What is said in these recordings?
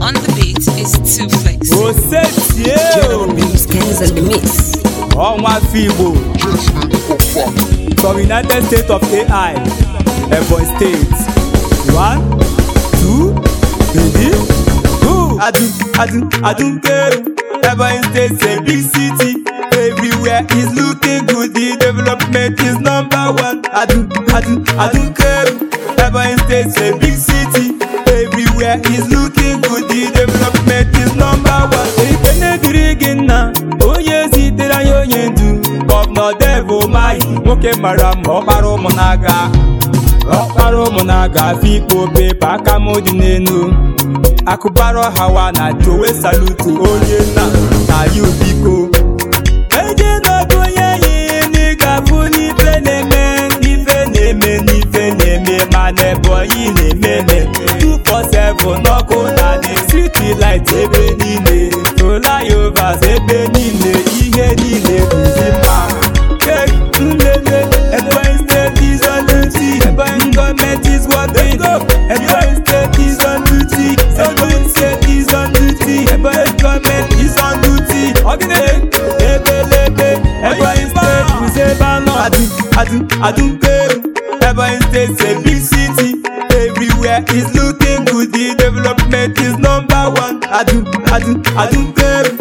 On the beat is two flex. Osetie. Ọnwa afọ Igbo. From United States of AI, Ebonyi State. One, two, three, two. Adun, Adun, Ebonyi State a big city. Everywhere is looking good, the development is number one. Adun, Adun, Adunkeru, Ebonyi State a big city. everywhere is looking good the development is number one ife gị nna onye zitere anyị onye ndu gọvanọ devo mayi nwoke mara mma ọkpara ụmụ na-aga ọkpara ụmụ na-aga afọ ikpo aka m dị n'elu akụbara hawa na jowe salutu onye na na ya biko eje n'ọdụ onye enyi na-eme n'ife na-eme n'ife na-eme ma na Texas ebe niile ihe niile bụzi mma Nlele Ebonyi State is on duty Ebonyi government is working Ebonyi State is on duty Ebonyi State is on duty Ebonyi government is on duty Ebelebe Ebonyi State is ebe anọ Adụ Adụ Adụ Ebonyi State is a big city Everywhere is looking good The development is number one Adụ Adụ Adụ Adụ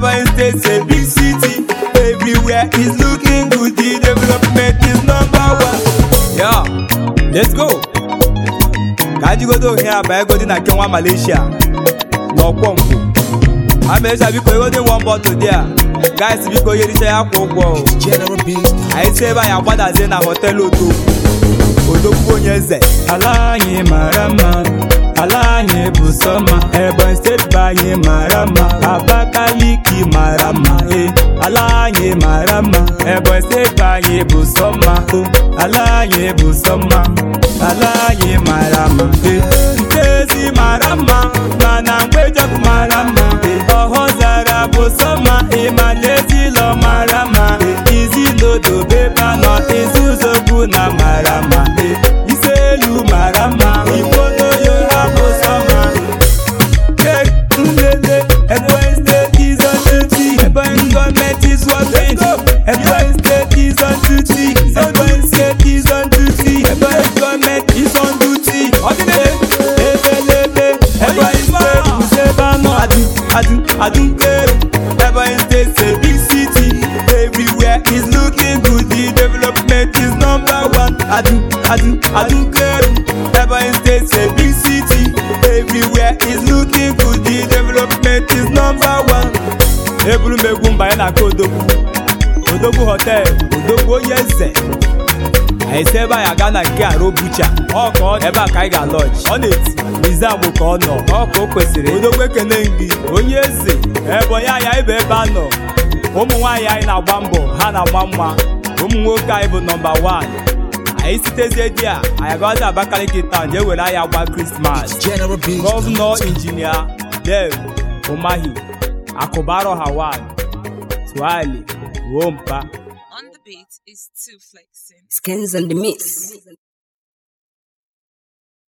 Ebonyi State a big city. Everywhere is looking good. The development is number one. Yeah, let's go. Ka anyị godo ohe a egodi na nke Malaysia n'ọkwọ nkwụ. Amecha biko egodi nwa mbọ tụdị a. Guys biko yericha ya kwa Anyị si ebe anyị na họteelụ Odogwu. Odogwu onye eze. Ala anyị mara mma. ala anyị bụ sọma Ebonyi steeti mma Abakaliki mara mma e eh, ala anyị mara mma Ebonyi eh, steeti anyị bụ sọma, mma eh, ala anyị bụ sọma, ala anyị mara mma e Nkezi mara mma mana Mgbejọkụ mara mma e Ọhụzara bụ sọma, mma ma na Ezilọ mara mma Adu, Adu, Ever in states, big city. Everywhere is looking good. The development is number one. Adu, Adu, Adu, Ever eh. in states, a big city. Everywhere is looking good. The development is number one. Ebulu mba, ya na kodogwu. Odogwu hotel, odogwu onye eze. esi ebe anyị gaa na nke arụ bucha ọ ebe a ka anyị ga-alọji ọ na-eti Lizzie ka ọ nọ ọ o kwesịrị odogbe ekene gị onye eze ebonyi onye ibe ebe a nọ ụmụ nwaanyị anyị na-agba mbọ ha na-agba mma ụmụ nwoke anyị bụ nọmba wan anyị sitezie di a anyị agazi Abakaliki taụn jee were anya gba krismas gọvanọ injinia Dev Umahi ha hawan twali ruo mpa is too flexing. Skins and the Miss.